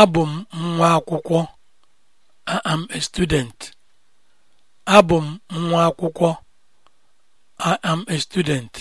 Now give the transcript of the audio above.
abụ m nwa akwụkwọ a student m nwa akwụkwọ I am a student